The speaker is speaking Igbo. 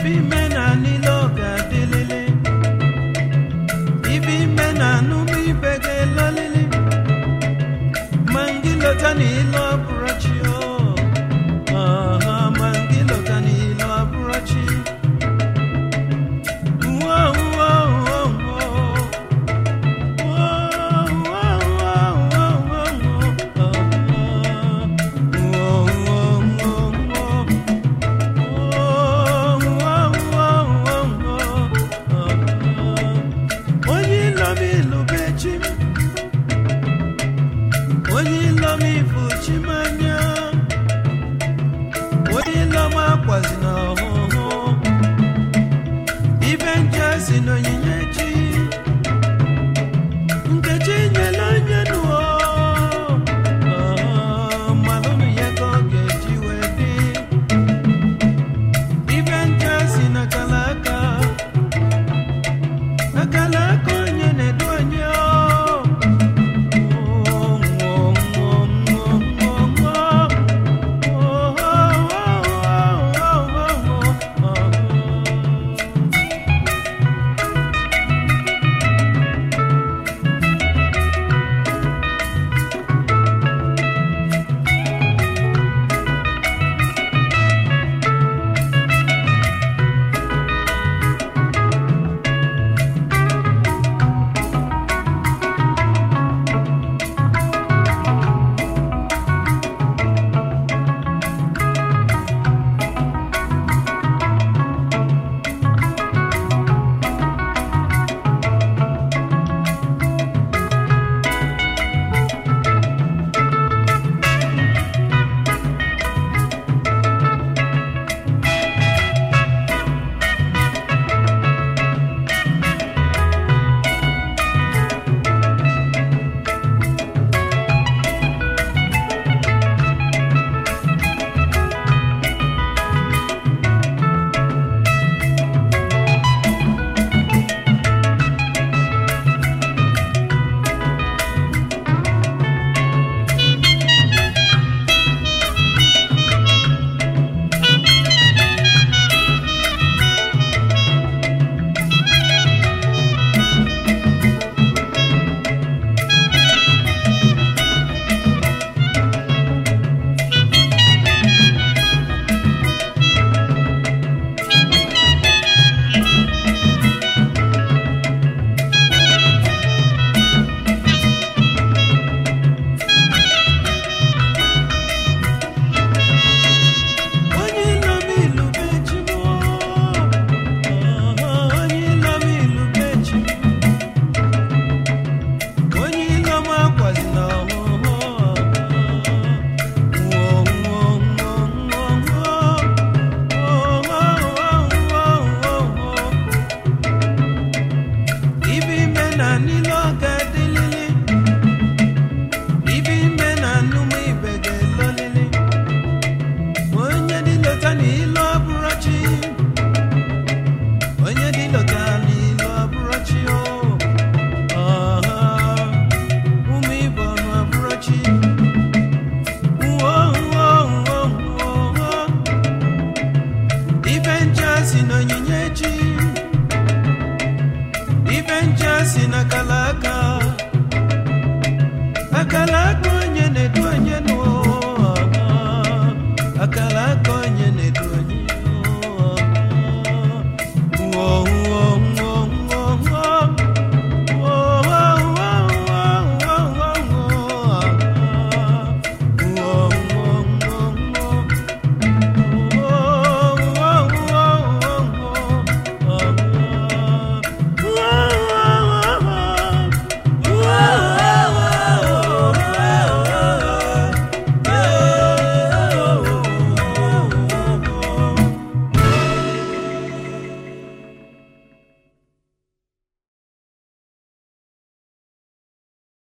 Ibi ime na niile ọ ga-adịlịlị ibe ime na ma ndị niile a lakụ